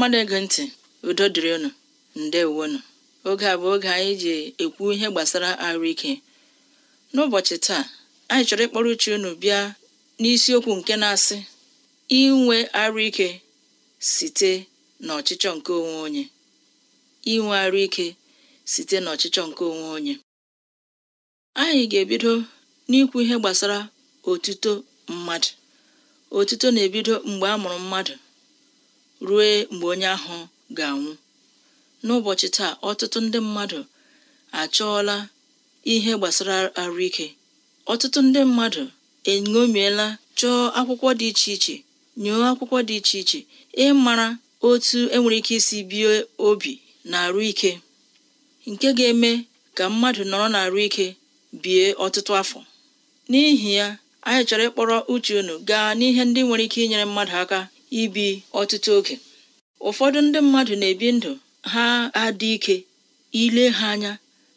mmadụ na ntị udo dịrị unu ndewonu oge a bụ oge anyị ji ekwu ihe gbasara arụ ike n'ụbọchị taa anyị chọrọ ịkpọrọ uche unu bịa n'isiokwu nke na-asị inwe arụ ike site n'ọchịchọ nke onwe onye inwe arụ site n'ọchịchọ nke onwe onye anyị ga-ebido n'ikwu ihe gbasara otuto mmadụ otuto na-ebido mgbe a mụrụ mmadụ ruo mgbe onye ahụ ga-anwụ n'ụbọchị taa ọtụtụ ndị mmadụ achọọla ihe gbasara arụike ọtụtụ ndị mmadụ eṅomiela chọọ akwụkwọ dị iche iche nyụọ akwụkwọ dị iche iche ịmara otu enwere ike isi bie obi na arụ ike nke ga-eme ka mmadụ nọrọ na ike bie ọtụtụ afọ n'ihi ya anyị chọrọ ịkpọrọ uche unu gaa n'ihe ndị nwere ike inyere mmadụ aka ibi ọtụtụ oge ụfọdụ ndị mmadụ na-ebi ndụ ha adị ike ile ha anya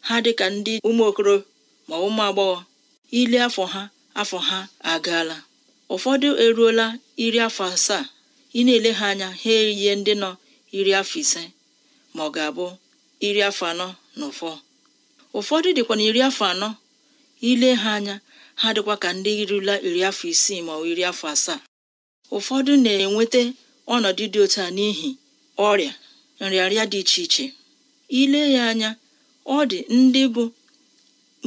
ha dị ka ndị ụmụokoro ma ụmụ agbọghọ ile afọ ha afọ ha agaala ụfọdụ eruola iri afọ asaa ị na-ele ha anya ha eyie ndị nọ iri afọ ise ma ọ ga-abụ iri afọ anọ na ụfọ ụfọdụ dịkwa na iri afọ anọ ile ha anya ha dịkwa ka ndị irula iri afọ isii ma ọ iri afọ asaa ụfọdụ na-enweta ọnọdụ dị otu a n'ihi ọrịa nrịarịa dị iche iche ile ya anya ọ dị ndị bụ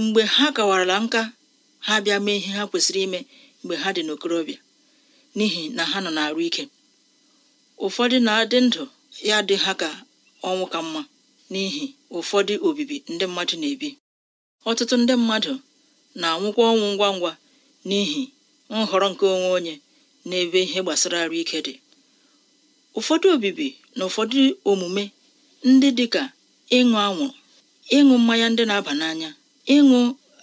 mgbe ha kawarala nka ha bịa mee ihe ha kwesịrị ime mgbe ha dị n'okorobịa n'ihi na ha nọ na-arụ ike ụfọdụ na-adị ndụ ya dị ha ka ọnwụ ka mma n'ihi ụfọdụ obibi ndị mmadụ na-ebi ọtụtụ ndị mmadụ na-anwụkwa ọnwụ ngwa ngwa n'ihi nhọrọ nke onwe onye n'ebe ihe gbasara arụ ike dị ụfọdụ obibi na ụfọdụ omume ndị dịka ịṅụ anwụrụ ịṅụ mmanya ndị na-aba n'anya ịṅụ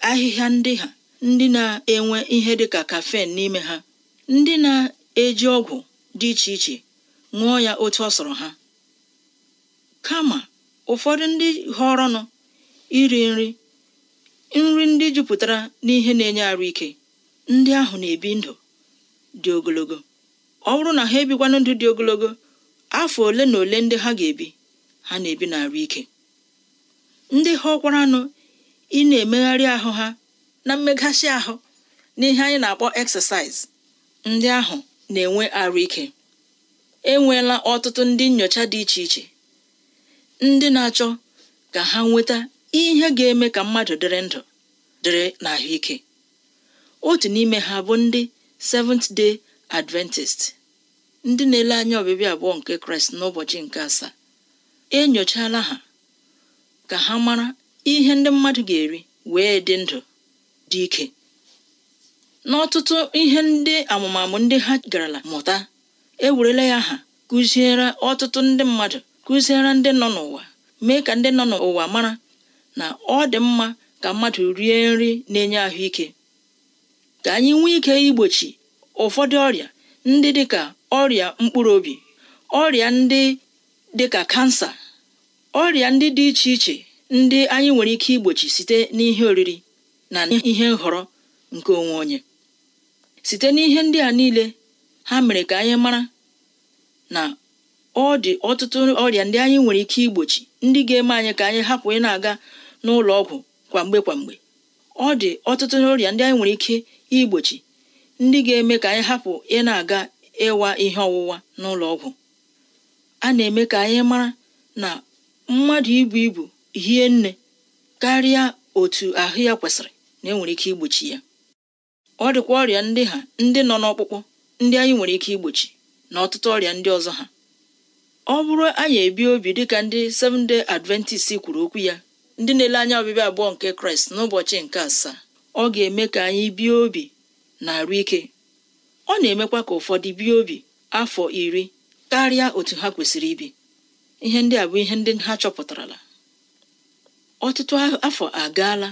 ahịhịa ndị ha ndị na-enwe ihe dịka kafen n'ime ha ndị na-eji ọgwụ dị iche iche ṅụọ ya otu ọ sọrọ ha kama ụfọdụ ndị họrọnụ iri nri nri ndị jupụtara n'ihe na-enye arụ ike ndị ahụ na-ebi ndụ dị ogologo ọ bụrụ na ha ebikwanụ ndụ dị ogologo afọ ole na ole ndị ha ga-ebi ha na-ebi n'arụ ike ndị ha ọkwara anụ ị na-emegharị ahụ ha na mmeghachi ahụ na ihe anyị na-akpọ exercise ndị ahụ na-enwe arụ ike enweela ọtụtụ ndị nyocha dị iche iche ndị na-achọ ka ha nweta ihe ga-eme ka mmadụ dịrị ndụ dịrị n'ahụike otu n'ime ha bụ ndị Seventh Day Adventist ndị na-ele anya ọbịbịa abụọ nke Kraịst n'ụbọchị nke asaa enyochala ha ka ha mara ihe ndị mmadụ ga-eri wee dị ndụ dị ike n'ọtụtụ ihe ndị amụmamụ ndị ha garala mụta ewerela ya ha kụziere ọtụtụ ndị mmadụ kụziere ndị nọ n'ụwa mee ka ndị nọ n'ụwa mara na ọ dị mma ka mmadụ rie nri na-enye ahụike ka anyị nwee ike igbochi ụfọdụ ọrịa ndị dịka ọrịa mkpụrụ obi ọrịa ndị dịka kansa ọrịa ndị dị iche iche ndị anyị nwere ike igbochi site n'ihe oriri na ihe nhọrọ nke onwe onye site n'ihe ndị a niile ha mere ka anyị mara na ọ dị ọtụtụ ọrịa ndị anyị nwere ike igbochi ndị ga-eme anyị ka anyị hapụ ị na-aga n'ụlọ ọgwụ kwamgbe kwamgbe ọ dị ọtụtụ n'ọrịa ndị anyị nwere ike igbochi ndị ga-eme ka anyị hapụ ị na-aga ịwa ihe ọwụwa n'ụlọ ọgwụ a na-eme ka anyị mara na mmadụ ibu ibu hie nne karịa otu ahụ ya kwesịrị na enwere ike igbochi ya ọ dịkwa ọrịa ndị ha ndị nọ n'ọkpụkpụ ndị anyị nwere ike igbochi na ọtụtụ ọrịa ndị ọzọ ha ọ bụrụ anyị ebi obi dịka ndị Seventh Day Adventist kwuru okwu ya ndị na-ele anya ọbịbịa abụọ nke kraịst n'ụbọchị nke asaa ọ ga-eme ka anyị bie obi na arụ ike ọ na-emekwa ka ụfọdụ bie obi afọ iri karịa otu ha kwesịrị ibi ihe ndị a bụ ihe ndị ha chọpụtarala ọtụtụ afọ agaala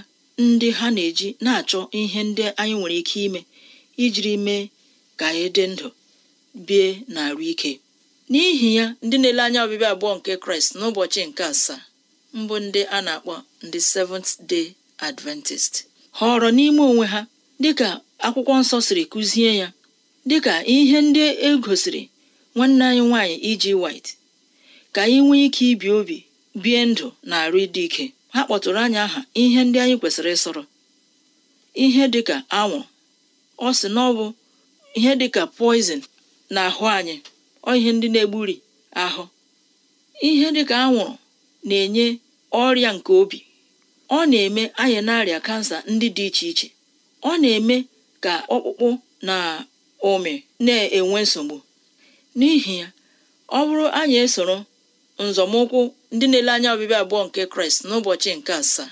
ndị ha na-eji na-achọ ihe ndị anyị nwere ike ime ijiri mee ka anyị dị ndụ bie na arụ ike n'ihi ya ndị na-ele anya ọbịbịa abụọ nke kraịst n'ụbọchị nke asaa mbụ ndị a na-akpọ ndị Seventh Day Adventist họrọ n'ime onwe ha dịka akwụkwọ nsọ siri kụzie ya dịka ihe ndị e gosiri nwanne anyị nwaanyị iji e white ka anyị nwee ike ibi obi bie ndụ na arụ ịdị ike ha kpọtụrụ anyị aha ihe ndị anyị kwesịrị ịsọrọ ihe dịka anwụ ọ sị na ọbụ ihe dịka poizin na ahụ anyị ọ ihe ndị na-egburi ahụ ihe dịka anwụrụ na-enye ọrịa nke obi ọ na-eme anyị na-arịa kansa ndị dị iche iche ọ na-eme ka ọkpụkpụ na ụmị na-enwe nsogbu n'ihi ya ọ bụrụ anyị esoro nzọmụkwụ ndị na-ele anya ọbịbịa abụọ nke kraịst n'ụbọchị nke asaa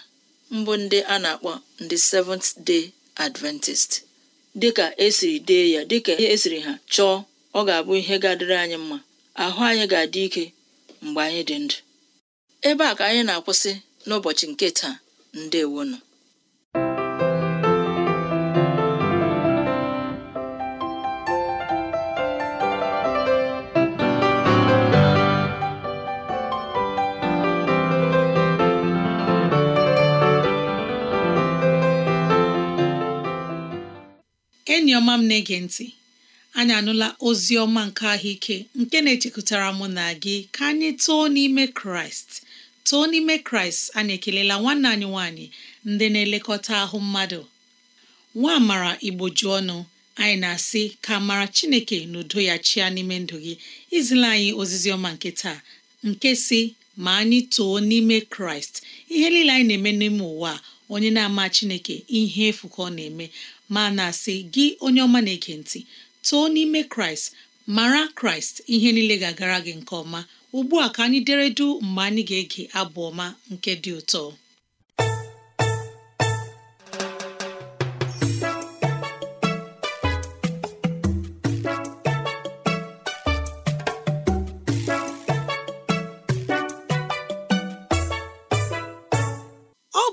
mbụ ndị a na-akpọ ndị seventh day adventist dịka esiri dee ya dịka esiri ha chọọ ọ ga-abụ ihe ga anyị mma ahụ anyị ga-adị ike mgbe anyị dị ndụ ebe a ka anyị na-akwụsị n'ụbọchị nke taa nọ. enyi ọma m na-ege ntị anyị anụla ozi ọma nke ahụike nke na-echekụtara mụ na gị ka anyị too n'ime kraịst too n'ime kraịst anyị ekelela nwanne anyị nwanyị ndị na-elekọta ahụ mmadụ nwa mara igboju ọnụ anyị na-asị ka mara chineke na udo ya chịa n'ime ndụ gị izila anyị ozizi ọma nke taa nke si ma anyị too n'ime kraịst ihe niile anyị na-eme n'ime ụwa onye na-ama chineke ihe efu ka ọ na-eme ma na-asị gị onye ọma na-ege ntị too n'ime kraịst mara kraịst ihe niile ga-agara gị nke ọma ugbu a ka anyị deredu mgbe anyị ga-ege abụ ọma nke dị ụtọ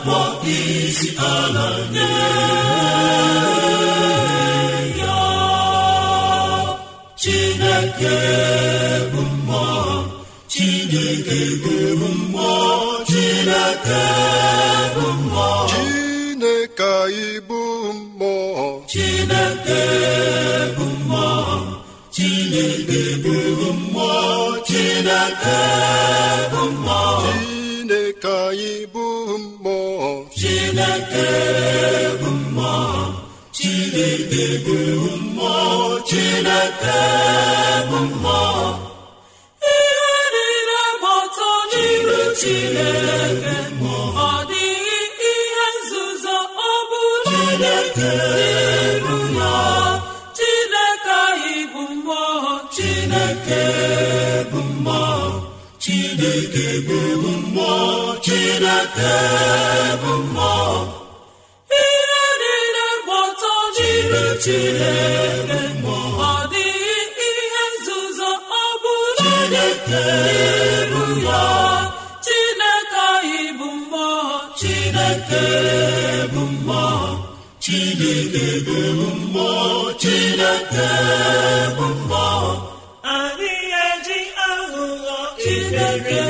akpọ isi ala nye ya Chineke bụ mmụọ Chineke bụ mmụọ Chineke bụ mmụọ Chineke anyị bụ mmụọ Chineke bụ mmụọ Chineke bụ mmụọ Chineke bụ mmụọ Chineke anyị bụ chineke bụ mmụọ chineke bụ mmụọ chineke bụ mmụọ ihe niile gbata n'iru chineke ọ dịghị ihe nzuzo ọ bụla n'iru ya chineke anyị bụ mmụọ chineke bụ mmụọ chineke bụ mmụọ Chineke bụ mmụọ ihe niile gbọtọ jiri Chineke ọ dịghị ihe nzuzo ọ bụla bụ ya Chineke anyị bụ mmụọ Chineke bụ mmụọ Chineke bụ mmụọ Chineke bụ mmụọ anyị eji aghụghọ Chineke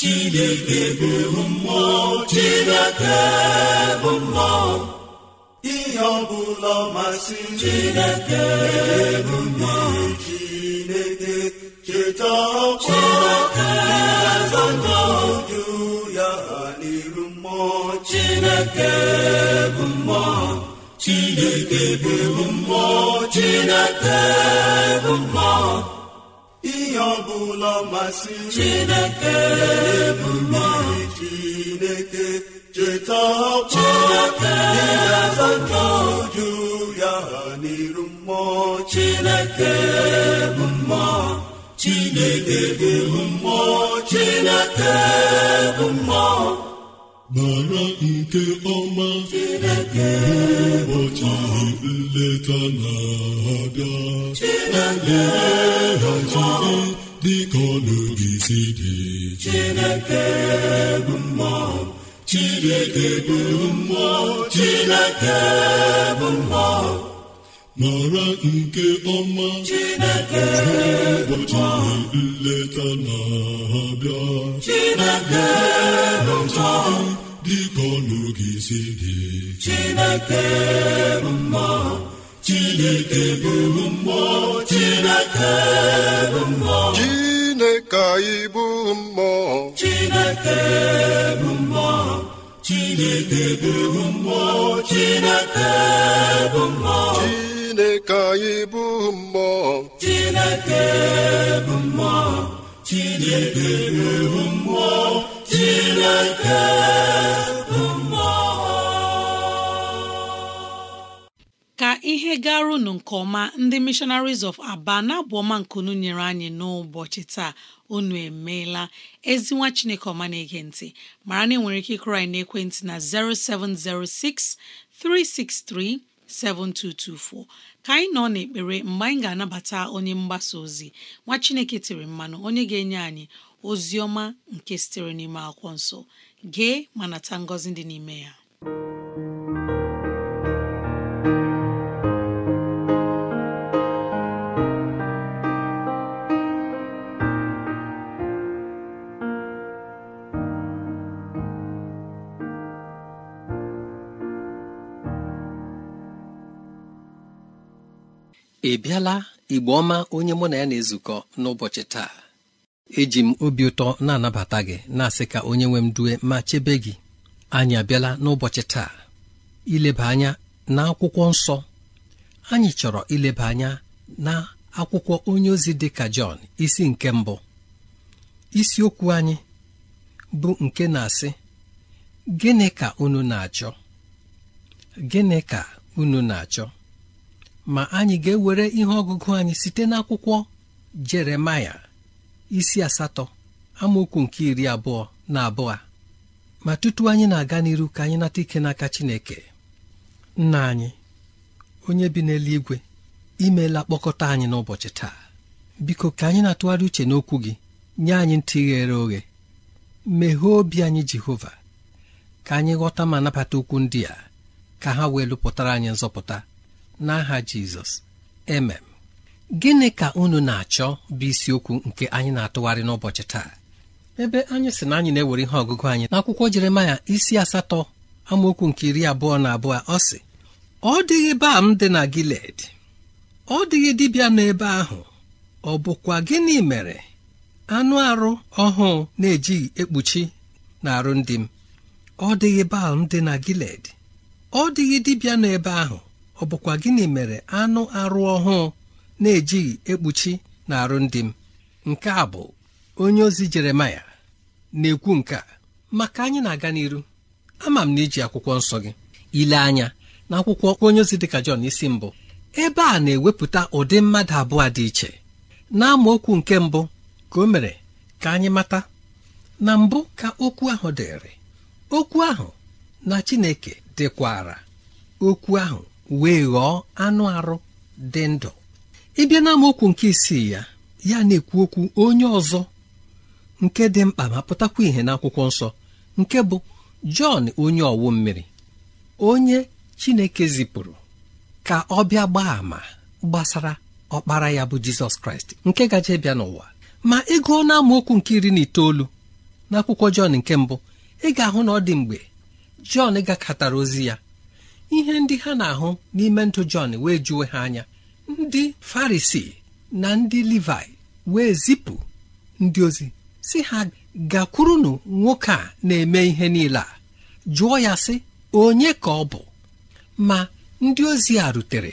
chineke bụ mmụọ chineke bụ mmụọ ihe ọ bụla masị chineke bụ mmụọ chineke cheta ọkwa eze ndụ ya ha n'iru mmụọ chineke bụ mmụọ chineke bụ mmụọ chineke bụ mmụọ ihe ọ bụla masịrị Chineke bụ mmiri Chineke cheta ọkpọ ịga-azata uju ya n'iru mmụọ Chineke bụ mmụọ Chineke bụ mmụọ Chineke bụ mmụọ mara nke ọma mgbe ụbọchị nleta na-abịa lelee dịka ọnụ si dị Chineke bụ Chineke bụ Chineke bụ mara nke ọma Chineke ụbọchị nleta na-abịa Chineke bụ dịka ọnụ gị si dị Chineke bụ mmụọ Chineke bụ mmụọ Chineke bụ mmụọ Chineke anyị bụ mmụọ Chineke bụ mmụọ Chineke bụ mmụọ Chineke bụ mmụọ Chineke anyị bụ mmụọ Chineke bụ mmụọ Chineke bụ mmụọ ka ihe gara unu nke ọma ndị missionaries of aba na-abụ ọma nyere anyị n'ụbọchị taa unu emeela ezinwa chineke ọma na-ege ntị mara na enwere ike ịkụrụ anyị n'ekwentị na 0706 363 7224 ka anyị nọ n'ekpere mgbe anyị ga-anabata onye mgbasa ozi nwa chineke tiri mmanụ onye ga-enye anyị ozi nke sitere n'ime akwụkwọ nsọ gee ma nata ngọzi dị n'ime ya ị bịala igbo ọma onye mụ na ya na-ezukọ n'ụbọchị taa eji m obi ụtọ na-anabata gị na-asị ka onye nwe m due ma chebe gị anyị abịala n'ụbọchị taa ileba anya na akwụkwọ nsọ anyị chọrọ ileba anya na akwụkwọ onye ozi dị ka Jọn isi nke mbụ isiokwu anyị bụ nke na-asị gịnị ka unu na-achọ gịnị ka unu na-achọ ma anyị ga-ewere ihe ọgụgụ anyị site n'akwụkwọ Jeremaya isi asatọ amaokwu nke iri abụọ na abụọ ma tutu anyị na-aga n'iru ka anyị nata ike n'aka Chineke nna anyị onye bi n'eluigwe imeela kpọkọta anyị n'ụbọchị taa biko ka anyị na-atụgharị uche n'okwu gị nye anyị ntị ghere oghe meghee obi anyị Jehova ka anyị ghọta ma nabata okwu ndị a ka ha wee lụpụtara anyị nzọpụta n'aha Jizọs emem gịnị ka unu na-achọ bụ isiokwu nke anyị na-atụgharị n'ụbọchị taa ebe anyị sị na anyị na-ewere ihe ọgụgụ anyị n'akwụkwọ jeremaya isi asatọ amaokwu nke iri abụọ na abụọ ọ sị ọ dịghị baa m dị na giled ọ dịghị dibịa n'ebe ahụ ọ bụkwa gịnị mere anụ arụ ọhụụ na-ejighị ekpuchi na arụ ndị m ọ dịghị baal m dị na giled ọ dịghị dibịa n'ebe ahụ ọ bụkwa gịnị mere anụ arụ ọhụụ na-ejighị ekpuchi na arụ ndị m nke a bụ onye ozi jeremaya na-ekwu nke a maka anyị na-aga n'iru ama m na iji akwụkwọ nsọ gị ile anya na akwụkwọ onye ozi dịka Jọn isi mbụ ebe a na-ewepụta ụdị mmadụ abụọ dị iche na amaokwu nke mbụ ka o mere ka anyị mata na mbụ ka okwu ahụ dịrị okwu ahụ na Chineke dịkwara okwu ahụ wee ghọọ anụ arụ dị ndụ ịbịa amaokwu nke isii ya ya na-ekwu okwu onye ọzọ nke dị mkpa ma pụtakwa ìhè n'akwụkwọ nsọ nke bụ Jọn onye ọwụ mmiri onye Chineke zipụrụ ka ọ bịa gbaa àmà gbasara ọkpara ya bụ Jizọs Kraịst nke gaje bịa n'ụwa ma ị na n'amaokwu nke iri na itoolu n'akwụkwọ Jọn nke mbụ ị ga-ahụ na ọ dị mgbe Jọn gakọtara ozi ya ihe ndị ha na-ahụ n'ime ndụ Jọn wee juwe ha anya ndị farisi na ndị livai wee zipụ ndị ozi si ha gakwurunu nwoke a na-eme ihe niile a jụọ ya sị onye ka ọ bụ ma ndị ozi a rutere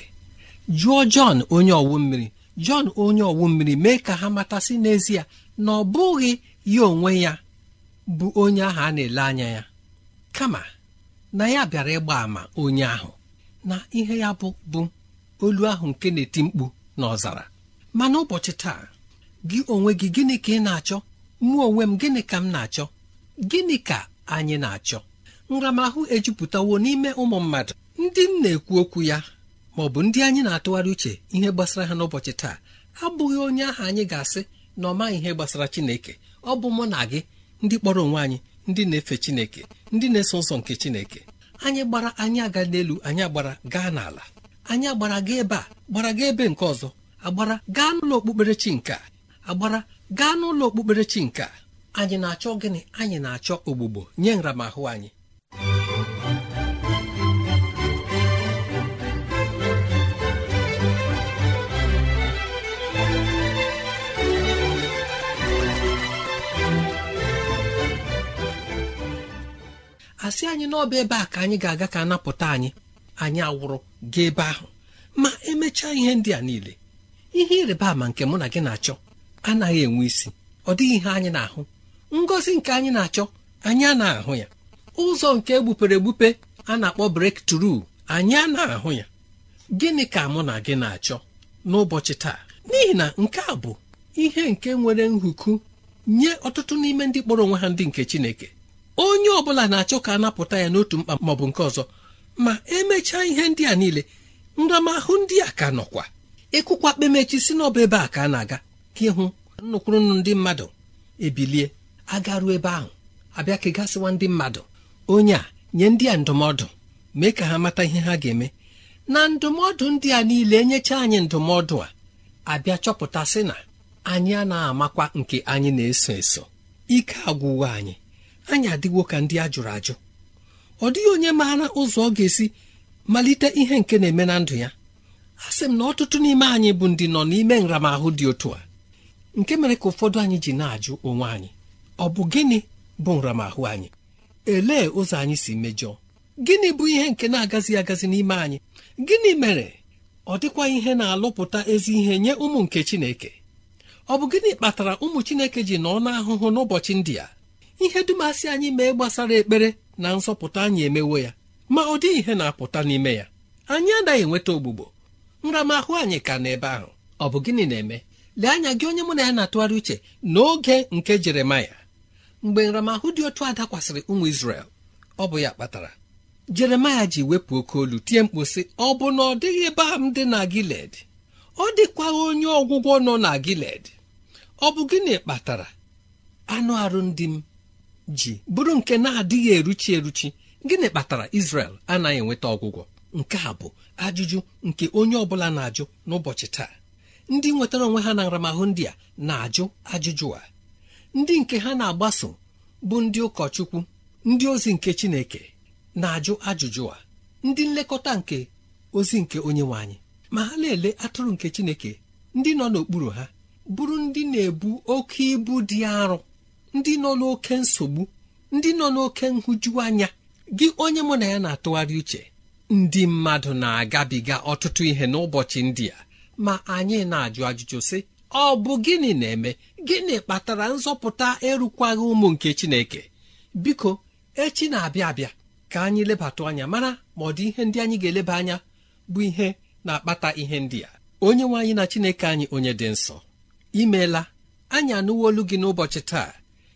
jụọ jọn onye ọwụ mmiri jọn onye ọwụ mmiri mee ka ha matasị n'ezie na ọ bụghị ya onwe ya bụ onye ahụ a na-ele anya ya kama na ya bịara ịgba ama onye ahụ na ihe ya bụ bụ olu ahụ nke na-eti mkpu n'ọzara ma n'ụbọchị taa gị onwe gị gịnị ka ị na-achọ mụ onwe m gịnị ka m na-achọ gịnị ka anyị na-achọ nramahụ ejupụtawo n'ime ụmụ mmadụ ndị m na-ekwu okwu ya ma ọ bụ ndị anyị na-atụgharị uche ihe gbasara ha n'ụbọchị taa abụghị onye ahụ anyị ga-asị na ọ maghị ihe gbasara Chineke ọ bụ mụ na gị ndị kpọrọ onwe anyị ndị na-efe Chineke ndị na-eso nsọ nke Chineke anyị gbara anyị aga n'elu anyị gbara gaa n'ala anyị agbara gị ebe a gbara gị ebe nke ọzọ agbara gaa n'ụlọ okpukperechi nka agbara gaa n'ụlọ okpukperechi nka anyị na-achọ gịnị anyị na-achọ ogbugbo nye nramahụ anyị asị anyị n'ọba ebe a ka anyị ga-aga ka napụta anyị anyị awụrụ gaa ebe ahụ ma emechaa ihe ndị a niile ihe ịrịba ama nke mụ na gị na-achọ anaghị enwe isi ọ dịghị ihe anyị na-ahụ ngọzi nke anyị na-achọ anyị a na-ahụ ya ụzọ nke egbupere egbupe a na-akpọ brek tru anyị a na-ahụ ya gịnị ka mụ na gị na-achọ n'ụbọchị taa n'ihi na nke a bụ ihe nke nwere nhuku nye ọtụtụ n'ime ndị kpọrọ onwe ha ndị nke Chineke onye ọ bụla na-achọ ka a napụta ya n'otu mkpa maọbụ nke ọzọ ma emechaa ihe ndị a niile nramahụ ndị a ka nọkwa ịkụkwa e kpemechi si n'ọba ebe a ka a na-aga ka ịhụ nnukwurunu ndị mmadụ ebilie agaruo ebe ahụ abịa ka gasịwa ndị mmadụ onye a nye ndị a ndụmọdụ mee ka ha mata ihe ha ga-eme na ndụmọdụ ndị a niile enyecha anyị ndụmọdụ a abịa chọpụtasị na anyị a na-amakwa nke anyị na-eso eso ike agwụwa anyị anyị adịwo ka ndị a jụrụ ajụ ọ dịghị onye maara ụzọ ọ ga-esi malite ihe nke na-eme na ndụ ya a sị m na ọtụtụ n'ime anyị bụ ndị nọ n'ime nramahụ dị otu a nke mere ka ụfọdụ anyị ji na-ajụ onwe anyị ọ bụ gịnị bụ nramahụ anyị elee ụzọ anyị si mejọọ gịnị bụ ihe nke na-agazi agazi n'ime anyị gịnị mere ọ dịkwa ihe na-alụpụta ezi ihe nye ụmụ nke Chineke ọ bụ gịnị kpatara ụmụ Chineke ji nọ n'ahụhụ n'ụbọchị ndị a ihe dumasị anyị mee gbasara ekpere na nsọpụta anyị emewo ya ma ọ dịghị ihe na-apụta n'ime ya anyị anaghị enweta ogbugbo nramahụ anyị ka n'ebe ahụ ọ bụ gịnị na-eme lee anya gị onye mụ na ya na-atụgharị uche n'oge nke jeremaya mgbe nramahụ dị otu a dakwasịrị ụmụ isrel ọ bụ ya kpatara jeremaya ji wepụ oke olu tie mkpu sị ọ bụ na ọ dịghị ebe a m dị na giled ọ dịkwa onye ọgwụgwọ nọ na giled ọ bụ gịnị kpatara anụ arụ ndị m ji bụrụ nke na-adịghị eruchi eruchi gịnị kpatara Israel anaghị enweta ọgwụgwọ nke a bụ ajụjụ nke onye ọbụla na-ajụ n'ụbọchị taa ndị nwetara onwe ha na nramahụ ndị a na-ajụ ajụjụ a ndị nke ha na-agbaso bụ ndị ụkọchukwu ndị ozi nke Chineke na-ajụ ajụjụ a ndị nlekọta nke ozi nke onye nwe anyị ma ha na-ele atụrụ nke Chineke ndị nọ n'okpuru ha bụrụ ndị na-ebu oke ibu dị arụ. ndị nọ n'oke nsogbu ndị nọ n'oke nhụjuanya gị onye mụ na ya na-atụgharị uche ndị mmadụ na-agabiga ọtụtụ ihe n'ụbọchị ndị a ma anyị na-ajụ ajụjụ sị ọ bụ gịnị na-eme gịnị kpatara nzọpụta ịrụkwaghị ụmụ nke Chineke biko echi na-abịa abịa ka anyị lebata anya mara ma ọ dị ihe ndị anyị ga-eleba anya bụ ihe na-akpata ihe ndị a onye nwe anyị na Chineke anyị onye dị nsọ imeela anyị anụwo olu gị n'ụbọchị taa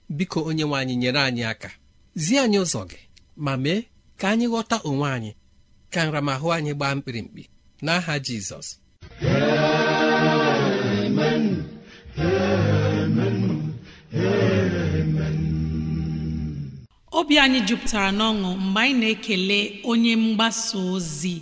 biko onye nwe anyị nyere anyị aka zie anyị ụzọ gị ma mee ka anyị ghọta onwe anyị ka nramahụ anyị gbaa mkpirimkpi n'aha jizọs obi anyị jupụtara n'ọṅụ mgbe anyị na-ekele onye mgbasa ozi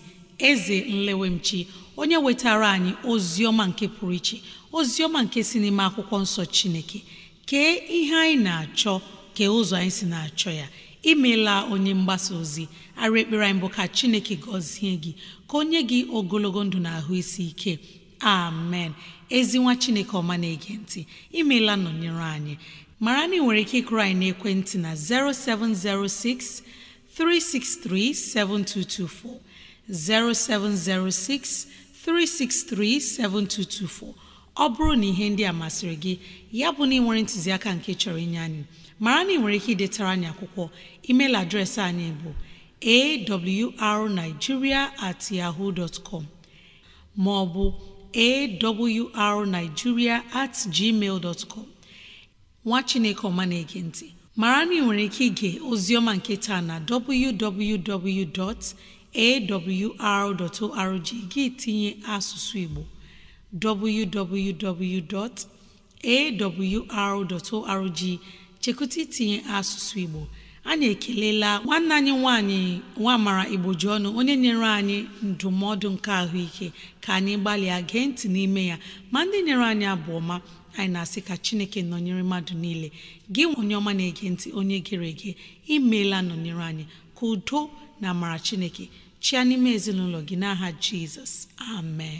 eze nlewemchi onye wetara anyị ozi ọma nke pụrụ iche ozi ọma nke si n'ime akwụkwọ nsọ chineke kee ihe anyị na-achọ kee ụzọ anyị si na-achọ ya imeela onye mgbasa ozi ara ekpere anyị bụ ka chineke gọzie gị ka o nye gị ogologo ndụ na ahụ isi ike amen ezi nwa chineke ọma na-ege ntị imeela nọnyere anyị mara na ị nwere ike ịkụrụ anyị n'ekwentị na 0706 363 7224 0706 363 7224 ọ bụrụ na ihe ndị a masịrị gị ya bụ na ị nwere ntụziaka nke chọrọ inye anyị mara na ị nwere ike idetara anyị akwụkwọ email adreesị anyị bụ awrnigeria at yahoo dot com maọbụ awrnigeria at gmail dot com nwa chineke ọma na-ege ntị mara na ị nwere ike ige oziọma nke taa na www.awr.org gị tinye asụsụ igbo www.awr.org chekwụta itinye asụsụ Igbo anyị ekelela nwanne anyị nwanyị ji ọnụ onye nyere anyị ndụmọdụ nke ahụike ka anyị gbalịa gee ntị n'ime ya ma ndị nyere anyị abụ ọma anyị na-asị ka chineke nọnyere mmadụ niile gị onye ọma na-ege ntị onye gere ege imeela nọnyere anyị ka udo na amara chineke chịa n'ime ezinụlọ gị n'aha jizọs amen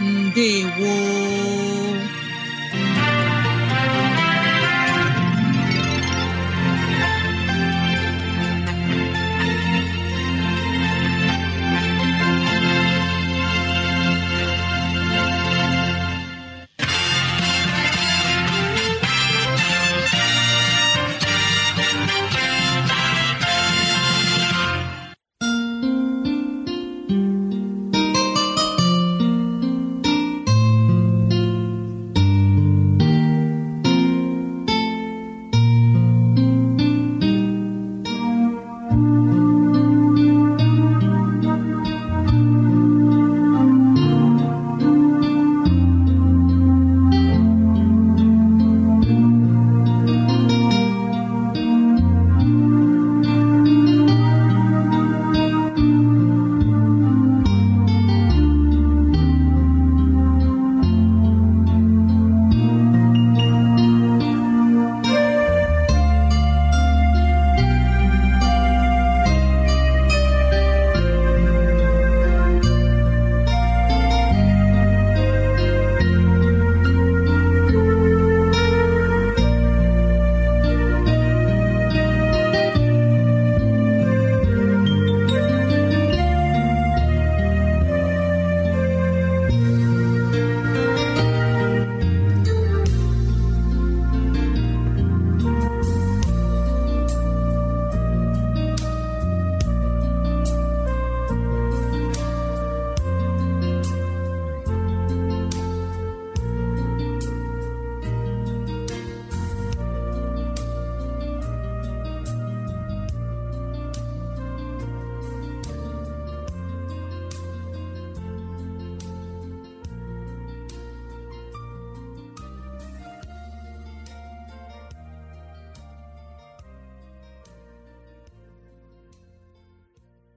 ndewo